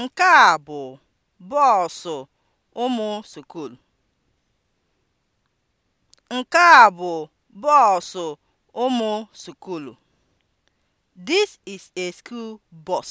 Nke a bụ bọọsụ ụmụ Sukulu. Nke This is a school bus.